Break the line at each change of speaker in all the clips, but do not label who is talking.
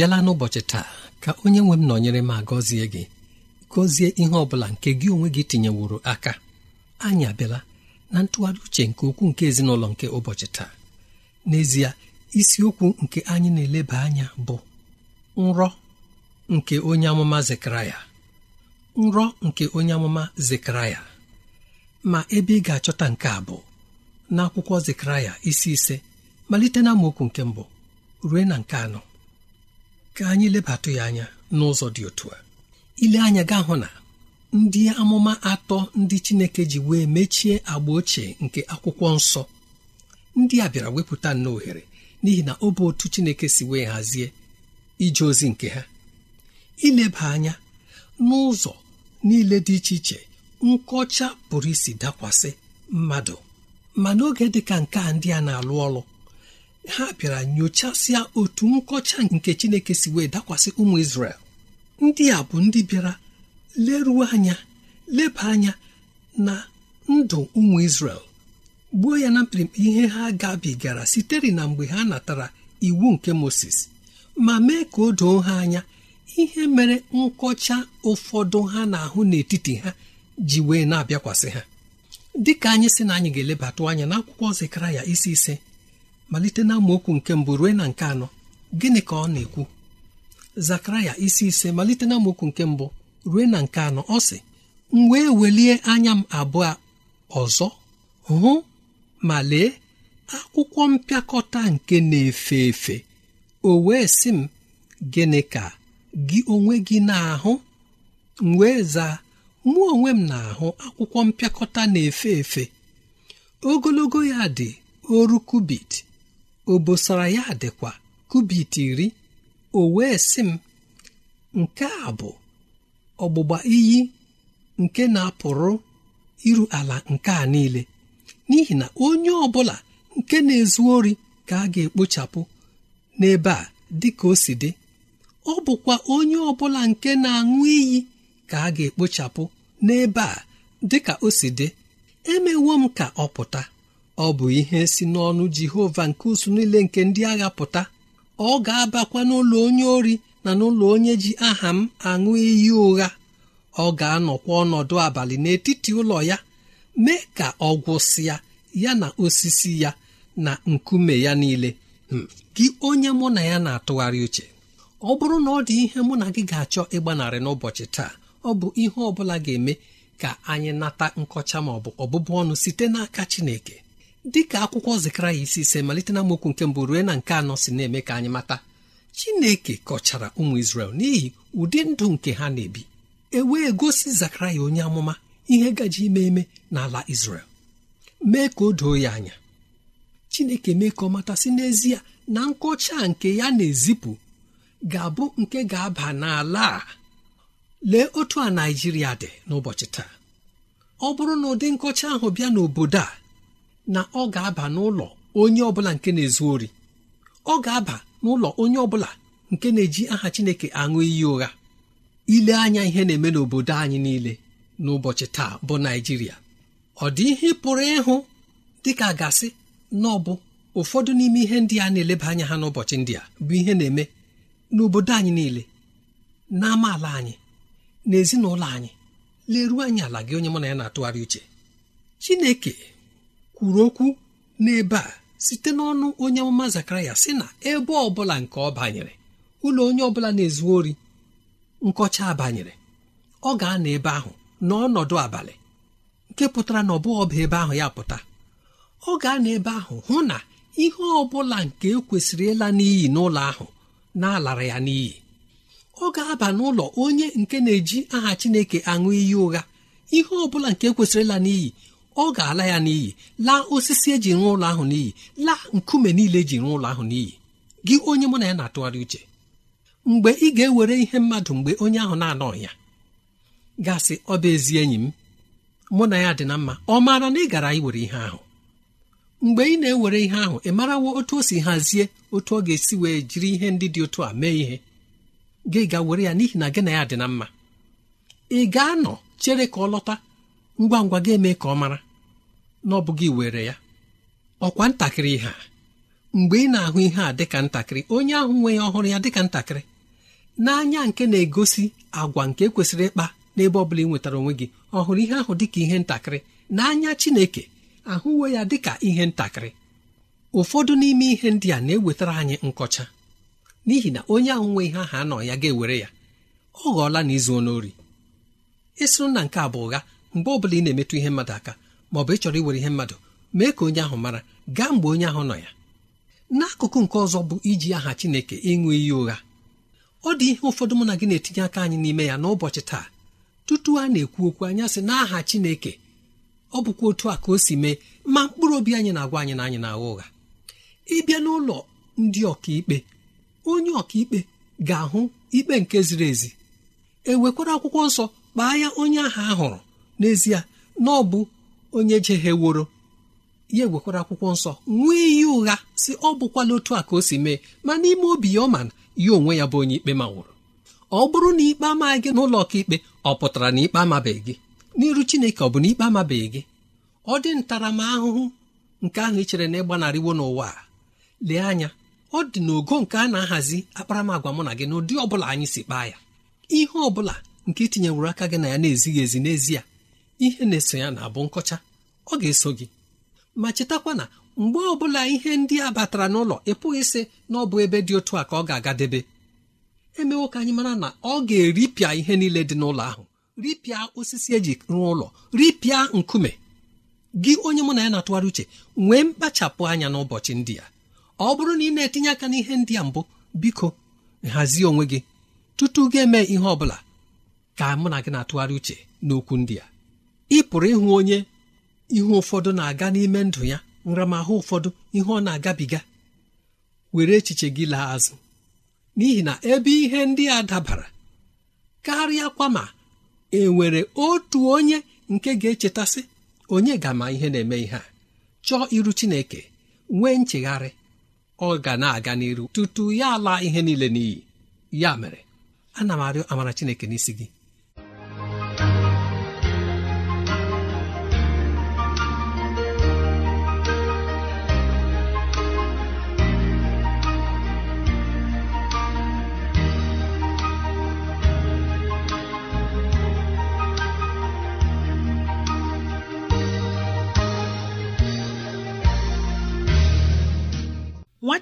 abịala n'ụbọchị taa ka onye nwe m nọnyere ma gọzie gị gọzie ihe ọ bụla nke gị onwe gị tinyeworo aka anyị abịala na ntụgharị uche nke ukwu nke ezinụlọ nke ụbọchị taa n'ezie isiokwu nke anyị na-eleba anya bụ nrọ nke onye amụma zekaraya nrọ nke onye amụma zekaraya ma ebe ị ga-achọta nke a bụ n'akwụkwọ zekaraya isi ise malite na okwu nke mbụ rue na nke anọ ka anyị lebatụ ya anya n'ụzọ dị otu a ile anya gaa hụ na ndị amụma atọ ndị Chineke ji wee mechie agba ochie nke akwụkwọ nsọ ndị a bịara wepụta nna ohere n'ihi na ọ bụ otu Chineke si wee hazie ije ozi nke ha ileba anya n'ụzọ niile dị iche iche nkọcha pụrụ isi dakwasị mmadụ ma n'oge dị ka nke a ndị a na-alụ ọlụ ha bịara nyochasịa otu nkọcha nke chineke si wee dakwasị ụmụ isrel ndị a bụ ndị bịara leruo anya leba anya na ndụ ụmụ isrel gbuo ya na mkpirimkpi ihe ha gabigara sitere na mgbe ha natara iwu nke Moses ma mee ka o doo ha anya ihe mere nkọcha ụfọdụ ha na-ahụ n'etiti ha ji wee na-abịakwasị ha dịka anyị si na anyị ga-elebatụ anya n'akwụkwọ ya isi ise malite na nke mbụ ruo na nke anọ gịnị ka ọ na-ekwu zakaraya isi ise malite na amaokwu nke mbụ ruo na nke anọ ọ sị m wee welie anya m abụọ ọzọ hụ ma lee akwụkwọ mpịakọta nke na-efe efe o wee sị m gịnị ka gị onwe gị na-ahụ m wee zaa mụ onwe m na-ahụ akwụkwọ mpịakọta na-efe efe ogologo ya dị oru kubit obosara ya dịkwa kubit iri o wee sị m nke a bụ ọgbụgba iyi nke na-apụrụ iru ala nke a niile n'ihi na onye ọ bụla nke na-ezu ori ka a ga-ekpochapụ n'ebe a dị ka o si dị ọ bụkwa onye ọ bụla nke na-aṅụ iyi ka a ga-ekpochapụ n'ebe a dị ka o si dị emewo m ka ọ pụta ọ bụ ihe si n'ọnụ Jehova nke usu niile nke ndị agha pụta ọ ga-abakwa n'ụlọ onye ori na n'ụlọ onye ji aha m aṅụ iyi ụgha ọ ga-anọkwa ọnọdụ abalị n'etiti ụlọ ya mee ka ọ gwụsịa ya na osisi ya na nkume ya niile hmm, gị onye mụ na ya na-atụgharị uche ọ bụrụ na ọ dị ihe mụ na gị ga-achọ ịgbanarị n'ụbọchị taa ọ bụ ihe ọ bụla ga-eme ka anyị nata nkọcha maọbụ bụ ọbụbụ ọnụ site n'aka Chineke dịka akwụkwọ Zekaraya isi ise malite na mokwu nke mbụ ruo na nke anọ si na-eme ka anyị mata Chineke kọchara ụmụ isrel n'ihi ụdị ndụ nke ha na-ebi e wee gosi Zekaraya onye amụma ihe gaji ime eme n'ala isrel mee ka o doo ya anya Chineke mee ka ọ matasị n'ezie na nkọcha nke ya na-ezipụ ga-abụ nke ga-aba n'ala a lee otu a naijiria dị n'ụbọchị taa ọ bụrụ na ụdị nkọcha ahụ bịa n'obodo a na ọ ga-aba n'ụlọ onye ọbụla nke na-ezu ori ọ ga-aba n'ụlọ onye ọbụla nke na-eji aha Chineke aṅụ iyi ụgha ile anya ihe na-eme n'obodo anyị niile n'ụbọchị taa bụ Naịjirịa ọ dị ihe pụrụ ịhụ dịka gasị na ọbụ ụfọdụ n'ime ihe ndị a na-eleba anya ha n'ụbọchị ndị a bụ ihe na-eme n'obodo anyị niile n'amaala anyị n'ezinụlọ anyị leruo anyị ala gị onye mụ na ya na-atụgharị uche Chineke kwuru okwu n'ebe a site n'ọnụ onye amụma zakaraya sị na ebe ọbụla nke ọ banyere ụlọ onye ọbụla na-ezu ori nkọcha banyere ọ ga-anọ ebe ahụ n'ọnọdụ abalị nke pụtara na ọ bụghị ọba ebe ahụ ya pụta ọ ga-anọ ebe ahụ hụ na ihe ọ bụla nke e kwesịrị ịla n'iyi n'ụlọ ahụ na-alara ya n'iyi ọ ga-aba n'ụlọ onye nke na-eji aha Chineke aṅụ iyi ụgha ihe ọ bụla nke e kwesịrị ịla n'iyi ọ ga-ala ya n'iyi laa osisi eji rụọ ụlọ ahụ n'iyi laa nkume niile eji rụọ ụlọ ahụ n'iyi gị onye mụ na ya na-atụgharị uche mgbe ị ga-ewere ihe mmadụ mgbe onye ahụ na-anọ ya gasị ọ bụ ezi enyi m mụ na ya dị na mma ọ maara na ị gara iwere ihe ahụ mgbe ị na-ewere ihe ahụ ị marawo otu o si hazie otu ọ ga-esi wee jiri ihe ndị dị otu a mee ihe gị ga were ya n'ihi na gị na ya dị na mma ị ga-anọ chere ka ọ lọta ngwa ngwa ga-eme ka ọ mara na ọ bụghị were ya ọkwa ntakịrị ha mgbe ị na-ahụ ihe a dịka ntakịrị onye ahụ nwe ya ọhụrụ ya dịka ntakịrị n'anya nke na-egosi agwa nke kwesịrị ịkpa n'ebe ọ bụla ị nwetara onwe gị ọhụrụ ihe ahụ dịka ihe ntakịrị n'anya Chineke ahụwe ya dịka ihe ntakịrị ụfọdụ n'ime ihe ndị a na-ewetara anyị nkọcha n'ihi na onye ahụ nwe ihe ahụ anọ ya ga-ewere ya ọ ghọọla na izu onori ịsụrụ na nke a bụ ụgha mgbe ọ bụla ị na-emetụ ihe mmadụ aka ma ọ bụ ịchọrọ iwere ihe mmadụ mee ka onye ahụ mara gaa mgbe onye ahụ nọ ya n'akụkụ nke ọzọ bụ iji aha Chineke ịṅụ iyi ụgha ọ dị ihe ụfọdụ mụ na gị na-etinye aka anyị n'ime ya n'ụbọchị taa tutu a na-ekwu okwu anya sị n'aha Chineke ọ bụkwa otu a ka o si mee ma mkpụrụ obi anyị na-agwa anyị na anyị na-agha ụgha ịbịa n'ụlọ ndị ọkaikpe onye ọkaikpe ga-ahụ ikpe nke ziri ezi e nwekwara akwụkwọ nsọ kpaa ya onye a hụrụ n'ezie na ọ bụ onye jegheworo ya egwekwara akwụkwọ nsọ nwee iyi ụgha si ọ bụkwala otu a ka o si mee ma n'ime obi ya ọ ma na ya onwe ya bụ onye ikpe ma nwụrụ ọ bụrụ na ikpe amaghị gị n'ụlọ ọkaikpe ọ pụtara na ikpe amabeghị gị n'iru chineke ọ bụ na ikpe amabeghị gị ọ dị ntaramahụhụ nke ahụ ị e chere na ịgbanarịwo n'ụwa lee anya ọ dị n'ogo nke a na-ahazi akparamagwa mụ na gị n'ụdị ọ bụla anyị si kpaa ya ihe ọ bụla nke itinyewuru aka gị na ya na-ezighị ezi n'ezie ihe na-eso ya na-abụ nkọcha ọ ga-eso gị ma chetakwa na mgbe ọbụla ihe ndị a batara n'ụlọ pụghị sị na ọ bụ ebe dị otu a ka ọ ga-agadebe emewo ka anyị mara na ọ ga-eripịa ihe niile dị n'ụlọ ahụ ripịa osisi eji rụọ ụlọ ripịa nkume gị onye mụ na ya na-atụgharị uche nwee mkpachapụ anya n'ụbọchị ndị a ọ bụrụ na ị na-etinye aka n'ihe ndị a mbụ biko nhazie onwe gị tutu gị eme ihe ọ bụla ka mụ na gị na-atụgharị uche n'okwu ndị a ị pụrụ ịhụ onye ihe ụfọdụ na-aga n'ime ndụ ya nramahụ ụfọdụ ihe ọ na-agabiga were echiche gị laa azụ n'ihi na ebe ihe ndị a dabara karịa kwa ma e nwere otu onye nke ga-echetasị onye ga-ama ihe na-eme ihe a chọọ iru Chineke nwee nchegharị ọ ga na-aga n'iru tutu ya ala ihe niile n'iyi ya mere ana m arịọ amara Chineke n'isi gị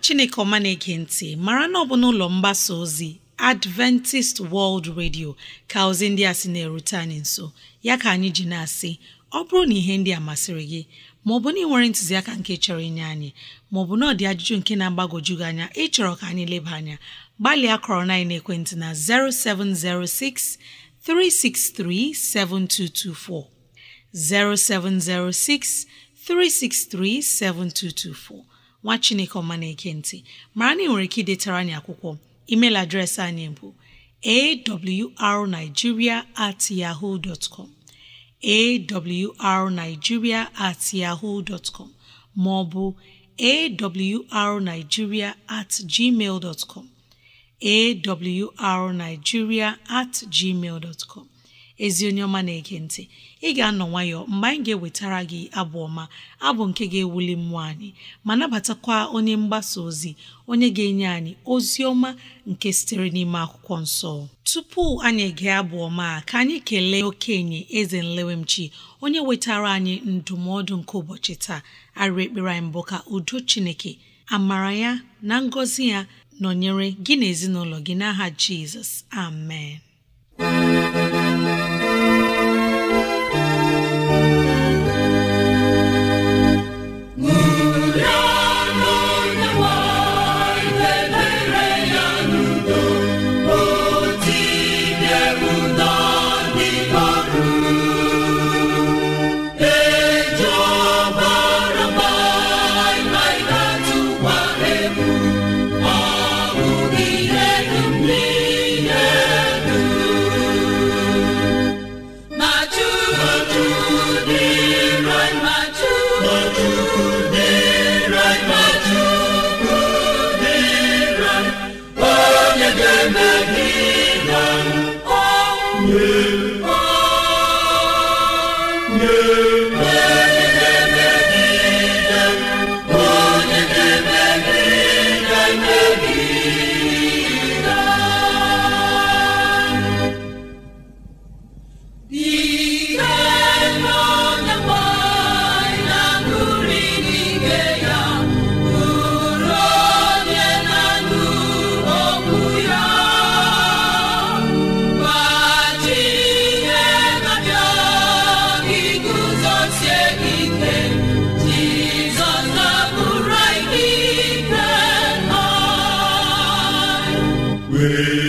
chineke ọma na-ege ntị mara na ọ bụ n'ụlọ mgbasa ozi adventist world radio ka ozi ndị a sị na-erute anyị nso ya ka anyị ji na-asị ọ bụrụ na ihe ndị a masịrị gị maọbụ na ị nwere ntụziaka nke chọrọ inye anyị maọbụ na ọ dị ajụjụ nke na agbagoju gị anya ịchọrọ ka anyị leba anya gbalịa kọrọ na ekwentị na 0706 363 7224 0706 363 7224 nwa chineke ọma na-eke ntị mara na ị nwere ike idetara anyị akwụkwọ email adreesị anyị bụ arigiria at at yaho maọbụ ma ọ bụ at gmail ezi onye ọma na-ege ntị ị ga-anọ nwayọọ mgbe anyị ga-ewetara gị abụ ọma abụ nke ga-ewuli mmụọ anyị ma nabatakwa onye mgbasa ozi onye ga-enye anyị ozi ọma nke sitere n'ime akwụkwọ nsọ tupu anyị ege abụ ọma ka anyị kelee okenye eze nlewemchi onye wetara anyị ndụmọdụ nke ụbọchị taa arịrị ekpere anyị mbụ ka udo chineke amara ya na ngọzi ya nọnyere gị na ezinụlọ gị n'aha jizọs amen away.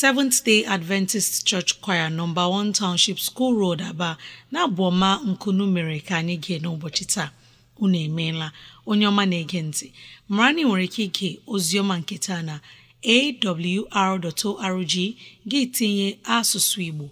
Seventh Day Adventist Church Choir nọmba 1 Township School Road Aba na-abụ ọma nkunu mere ka anyị gee n'ụbọchị taa unu emeela onye ọma na-ege ntị mara na ị nwere ike ige oziọma nke taa na awr.org gị tinye asụsụ Igbo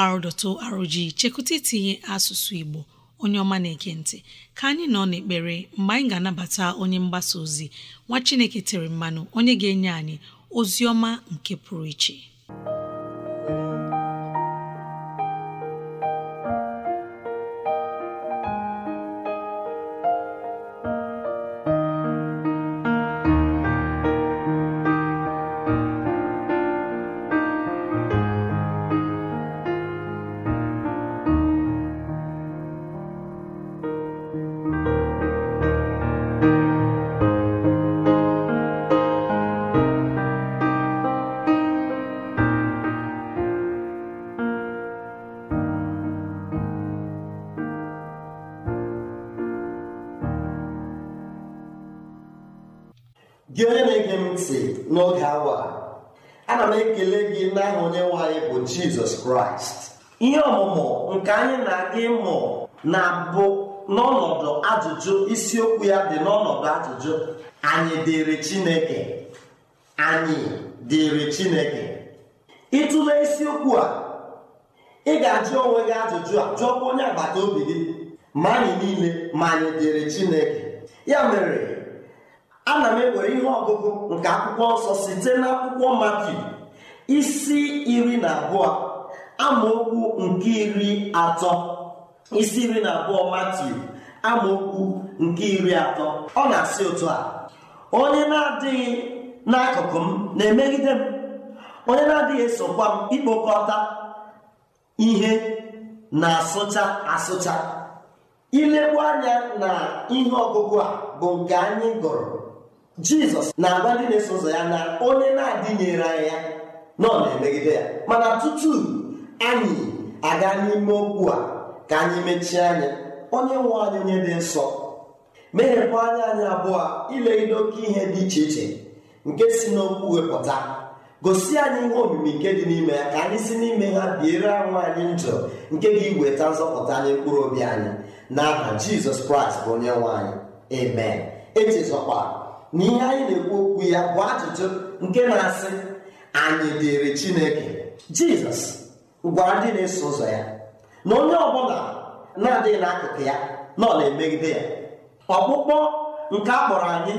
awr.org chekụta itinye asụsụ Igbo onye ọma na-ege ntị ka anyị nọ n'ekpere mgbe anyị ga-anabata onye mgbasa ozi nwa Chineke tere mmanụ onye ga-enye anyị Ozioma nke pụrụ iche
gị onye na-ege m ntị n'oge awa ana m ekele gị n'aha onye nwaanyị bụ jizọs kraịst ihe ọmụmụ nke anyị na-aga ịmụ na-abụ n'ọnọdụ ajụjụ isiokwu ya dị n'ọnọdụ ajụjụ anyị dịrị chineke anyị dịrị chineke ịtụle isiokwu a ị ga-ajụ onwe gị ajụjụ a jụọkwa onye agbata obi gị ma anyị niile ma anyị dịrị chineke ya mere ana m ewere ihe ọgụgụ nke akwụkwọ nsọ site n'akwụkwọ mati isi iri na abụọ amaokwu isi iri na abụọ matiu amaokwu nke iri atọ ọ na-asị otu a onye na-adịghị n'akụkụ m na-emegide m onye na-adịghị esokwa m ikpokọta ihe na-asụcha asụcha Ilegbu anya na ihe ọgụgụ a bụ nke anyị gụrụ jizọs na-agwa ndị na-eso ụzọ ya na onye na-adịnyere anyị ya nọ na-emegide ya mana tutu anyị aga n'ime okwu a ka anyị mechie anya onye nwe anyị onye dị nsọ meghekwa anya anyị abụọ ilegide oke ihe dị iche iche nke si n'okwu wepụta gosi anyị ihe omimi nke dị n'ime ya ka anyị si n'ime ha biere anwụ anyị njọ nke ga iweta nzọpụta anyị mkpụrụ obi anyị n'aha jizọs kraịst bụ onye nwe anyị amen echezọkwa na ihe anyị na-ekwu okwu ya bụ ajụjụ nke na-asị anyị dịrị chineke jizọs gwara ndị na-eso ụzọ ya na onye ọbụla na-adịghị n'akụkụ ya na ọ na-emegide ya ọkpụkpọ nke akpọrọ anyị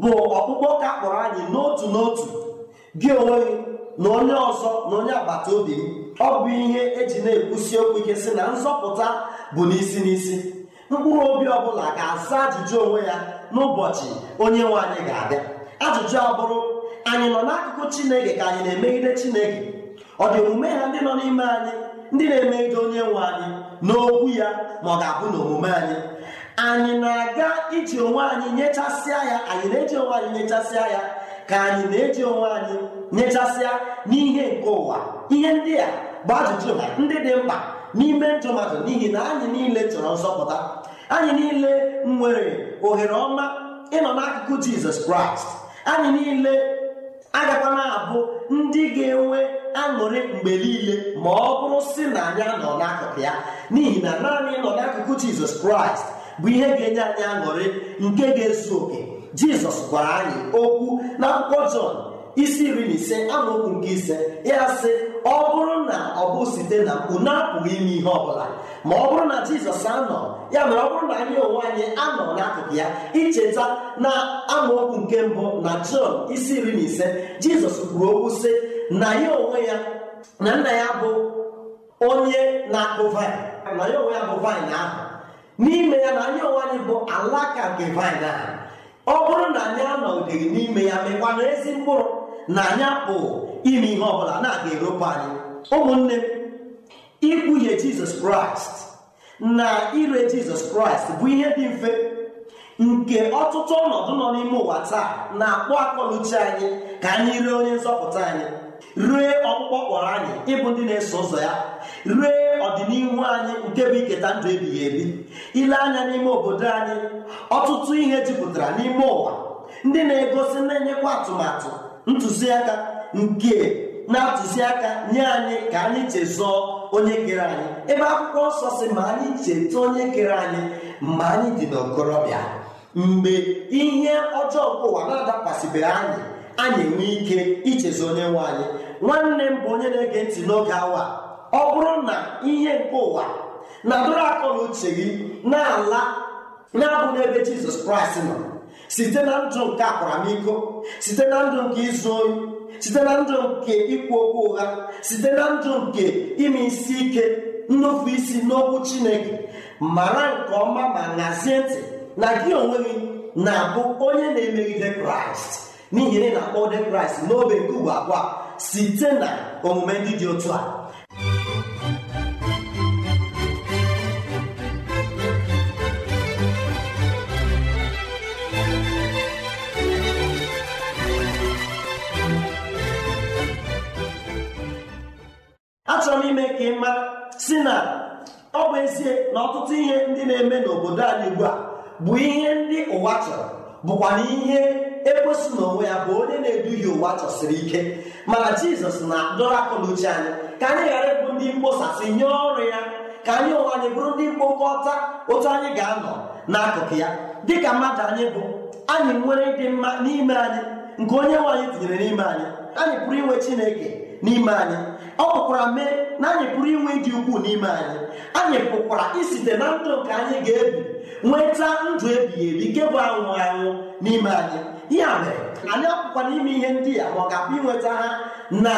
bụ ọkpụkpọ ka akpọrọ anyị n'otu n'otu gị onwe gị na onye ọzọ na onye agbata obi ọ bụ ihe eji na-ekwusi okwu ike sị na nzọpụta bụ n'isi n'isi mkpụrụ obi ọbụla ga-asa ajụjụ onwe ya n'ụbọchị onye nwe anyị ga-abịa ajụjụ abụrụ anyị nọ n'akụkụ chineke ka anyị na-emegide chineke ọ dị omume ha ndị nọ n'ime anyị ndị na-emegide onye nwe anyị n'okwu ya ma ọ ga-abụ n'omume anyị anyị na-aga iji onwe anyị nyechasịa ya anyị na-eji onwe anyị nyechasịa ya ka anyị na-eji onwe anyị nyechasịa n'ihe nke ụwa ihe ndị a bụ ajụjụ ha ndị dị mkpa n'ime njọ mmadụ n'ihi na anyị niile chọrọ nzọpụta anyị niile nwere ohere ọma ịnọ n'akụkụ jizọs kraịst anyị niile agakwana na-abụ ndị ga-enwe aṅụrị mgbe niile ma ọ bụrụ si na anyị anọ n'akụkụ ya n'ihi na naanị ịnọ n'akụkụ jizọs kraịst bụ ihe ga-enye anyị aṅụrị nke ga-ezu oke jizọs gwara anyị okwu na akwụkwọ jọn isi iri na ise amaokwu nke ise ya sị ọ bụrụ na ọ bụ site na na apụghị ime ihe ọbụla ma ọ bụrụ na jizọs anọ ya mere ọ bụrụ na anyị onwe anyị anọ n'akụkụ ya icheta na amaokwu nke mbụ na jọn isi iri na ise jizọs kwuru okwu sị na ya onwe ya na nna ya bụ onye na-akụ vaịn na ya onwe ya bụ vaịn ahụ n'ime ya na anyị onwe anyị bụ alaka nke vaịn ahụ ọ bụrụ na anyị anọghị n'ime ya ezi mkpụrụ na anyị apụ ime ihe ọbụla na-aga eropu anyị ụmụnne ikwuhie jizọs kraịst na ire jizọs kraịst bụ ihe dị mfe nke ọtụtụ ọnọdụ nọ n'ime ụwa taa na-akpọ akpọluchi anyị ka anyị ree onye nzọpụta anyị ree ọkpụkpọ kpọrọ anyị ịbụ ndị na-eso ụzọ ya ree ọdịnihu anyị nke bụ iketa ndụ ebighị ebi ile anya n'ime obodo anyị ọtụtụ ihe jupụtara n'ime ụwa ndị na-egosi na-enyekwa atụmatụ ntụziaka nke na-atụziaka nye anyị ka anyị chezọọ onye kere anyị ebe akwụkwọ nsọ si ma anyị cheta onye kere anyị mgbe anyị dị n'okorobịa mgbe ihe ọjọọ nke ụwa na-adakwasịbeghị anyị anyị enwe ike ichezọ onye nwe anyị nwanne m bụ onye na-ege ntị n'oge awa ọ bụrụ na ihe nke ụwa na-adọrọ akọ na uche gị na-ala na-abụ n'ebe jizọs kraịst nọ site na ndụ nke akwaramiko site na ndụ nke izu oyi site na ndụ nke ikwu okwu ụgha site na ndụ nke ime isi ike nnufu isi n'okwu chineke mara nke ọma ma nazie ntị na gị onwe gị na-abụ onye na-emegide kraịst n'ihi na ị na-akpọ de kraịst n'obe nke ugbo abụọ site na omume ndị dị otu a achọrọ m ime ka ị mara si na ọ bụ ezie na ọtụtụ ihe ndị na-eme n'obodo anyị ugbu a bụ ihe ndị ụwa chọrọ bụkwa na ihe ekwesị n'onwe ya bụ onye na-eduhie ụwa chọsiri ike mana jizọs na-adọrọ akụ uche anyị ka anyị ghara ịbụ ndị mkposasị nye ọrụ ya ka anyị ụwa anyị bụrụ ndị mkpokọta otu anyị ga-anọ n'akụkụ ya dịka mmadụ anyị bụ anyị nwere ịdị mma n'ime anyị nke onye nwe anyị tinyere n'ime anyị anyị pụrụ inwe chineke n'ime anyị ọ pụkwara mee na anyị pụrụ inwe dị ukwuu n'ime anyị anyị pụkwara isite na ndụ nke anyị ga-ebi nweta ndụ ebighị ebi nke bụ anwụ anwụ n'ime anyị ya mere anyị apụkwana ime ihe ndị a ma ọ ga-apụ inweta ha na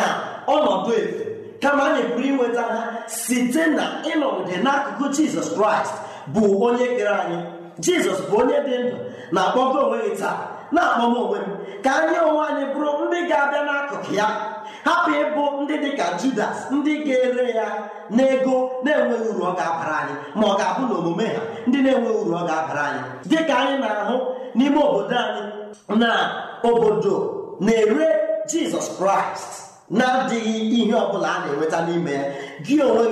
ọnọdụ efu kama anyị pụrụ inweta ha site na ịnọgide n'akụkụ jizọs kraịst bụ onye kere anyị jizọs bụ onye dị ndụ na-akpọgo onwe gị taa na-akpọgo onwe m ka anyị onwe anyị bụrụ ndị ga-abịa n'akụkụ ya hapụ ịbụ ndị dịka ka judas ndị ga-ere ya n'ego na-enweghị uru ọ ga-abara anyị ma ọ ga-abụ na omume ha ndị na-enweghị uru ọ ga-abara anyị dịka anyị na-ahụ n'ime obodo anyị na obodo na-ere jizọs kraịst na-adịghị ihe ọbụla a na-enweta n'ime ya gị onwe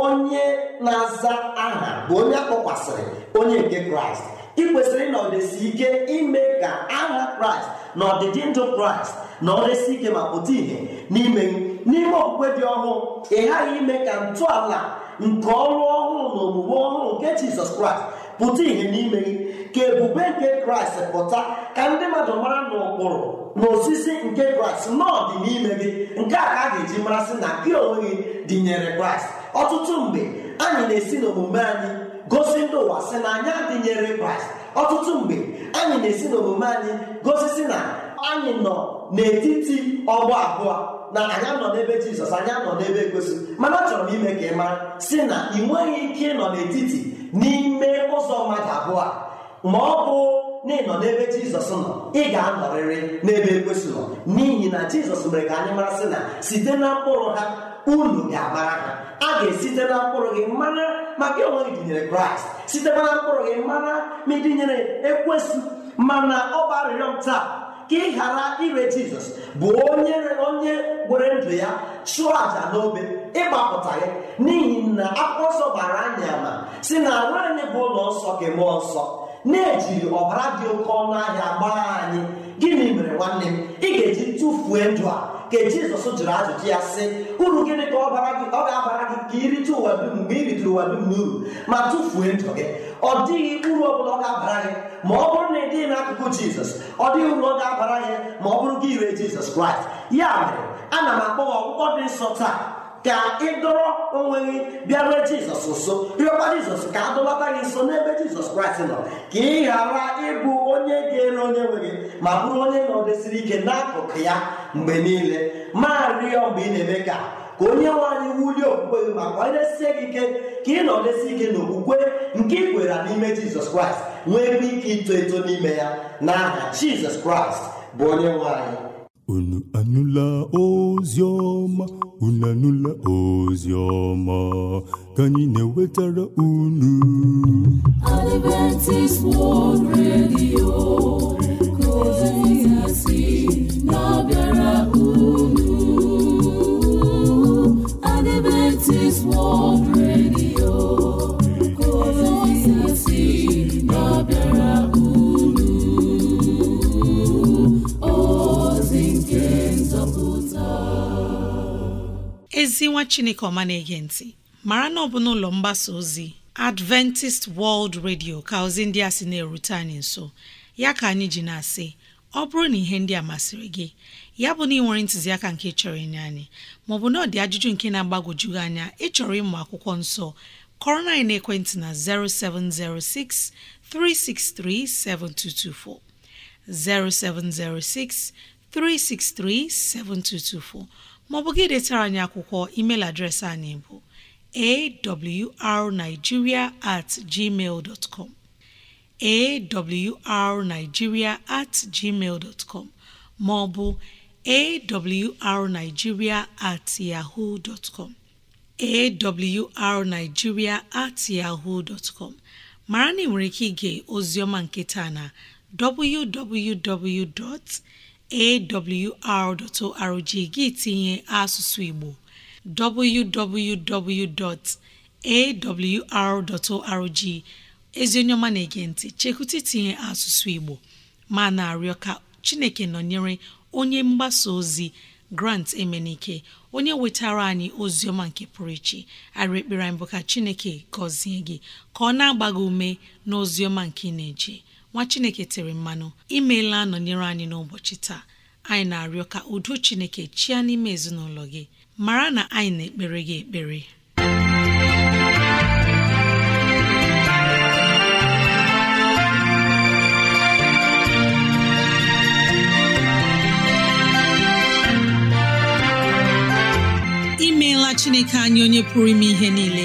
onye na-aza aha bụ onye akpọkwasịrị onye nke kraịst ị kwesịrị na ọdịsi ike ime ka aha kraịst na ọdịdị ndụ kraịst na ọdịsi ike ma pụta ìhè n'ime n'ime okpukpe dị ọhụụ ị ghaghị ime ka ntọala nke ọrụ ọhụụ na omume ọhụrụ nke jizọs kraịst pụta ìhè n'ime gị ka ebube nke kraịst pụta ka ndị mmadụ mara na ụkpụrụ na osisi nke kraịst n'ọdị n'ime gị nke a ka a ga-eji marasị na gị onwe gị dịnyere kraịst ọtụtụ mgbe anyị na-esi n'omume anyị gosi ndị ụwa sị na anyị adịnyere kraịst ọtụtụ mgbe anyị na-esi n'omume anyị gosisi na anyị nọ n'etiti ọgbọ abụọ na anyị anọ n'ebe jizọs anyị anọ n'ebe egosi mana achọrọ m ime ka ị mara si na ị nweghị ike ịnọ n'etiti n'ime ụzọ mmadụ abụọ ma ọ bụ na ị nọ n'ebe jizọs nọ ị ga-anọrịrị n'ebe ekwesị nọ n'ihi na jizọs mere ka anyị mara na site na mkpụrụ ha unu ga-amara a ga-esite na mkpụrụ gị mara maka onwe gị dịnyere kraịst site na mkpụrụ gị mara ma ịdịnyere ekwesị mana ọ bụ arịrịọ m taa ka ị ghara ire jizọs bụ onye onye gwere ndụ ya chụọ àjà n'obe ịgbapụta gị n'ihi na akwụkwọ nsọ gbara anyị ama si na arụ anyị bụ ụlọ nsọ gị mụọ nsọ na-ejiri ọbara dị oke ọnụ ahịa gbaa anyị gịnị mere nwanne m ị ga-eji tụfuo ndụ a ka jizọs jụrụ ajụjụ ya sị uru gịnị ka ọ ga-abara gị ka irite ụwa dum mgbe i ritụrụ ụwa dum n'uru ma tụfuo ndụ gị ọ dịghị uru ọ bụla ọ ga-abara gị ma ọ bụrụ na ị dịghị n'akụkụ jizọs ọ dịghị uru ọ ga-abara gị ma ọ bụrụ gị ire jizọs kraịst ya mere ana m akpọ ọgwụgwọ dị nsọ taa ka ị dọrọ onwe gị bịarue jizọs nso rịọkwa jizọs ka a dọlata gị nso n'ebe jizọs kraịst nọ ka ị ghara ịbụ onye ga-ere onye nwere ma bụrụ onye nọdesiri ike n'akụkụ ya mgbe niile ma rịọ mgbe ị na-eme ka ka onye nwanyị wulie okwukwe gị maka onye sie gị ike ka ị nọdesi ike n'okwukwe nke ị kwere n'ime jizọs kraịst nwee ike ito eto n'ime ya n'aha jizọs kraịst bụ onye nwanyị. unu anụla ozi ọma unu anụla ozi ọma ka anyị na-ewetara unu
unu Adventist World Radio
ezi nwa chineke ọma na-ege ntị mara na ọ bụ n'ụlọ mgbasa ozi Adventist World Radio ka ozi ndị a sị na-erute anyị nso ya ka anyị ji na-asị ọ bụrụ na ihe ndị a masịrị gị ya bụ na ị nwere ntụziaka nke chọrọ ịnye anyị maọbụ na ọ dị ajụjụ nke na agbagojugị anya ịchọrọ ịmụ akwụkwọ nsọ kọrọ na anyị na-ekwentị na 0706 363 7224 0706 363 7224 maọbụ gị detara anyị akwụkwọ email adreesị anyị bụ awrnigeria at gmail dot com awrnigeria at com maọbụ awrnigeria at yahoo dot com awrnigeria at yahoo dot com mara na ị nwere ike ige ọma nke taa na www. awr.org gị tinye asụsụ Igbo www.awr.org ezi onye ọma na-ege ntị chekwụta itinye asụsụ Igbo ma na-arịọ ka Chineke nọnyere onye mgbasa ozi Grant Emenike onye wetara anyị ozi ọma nke pụrụ iche arị ekpere anyị bụ ka Chineke gọzie gị ka ọ na-agba ume n'ozi ọma nke ị na-eje nwa chineke tere mmanụ imeela nọnyere anyị n'ụbọchị taa anyị na-arịọ ka udo chineke chịa n'ime ezinụlọ gị mara na anyị na-ekpere gị ekpere imeela chineke anyị onye pụrụ ime ihe niile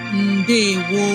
ndewo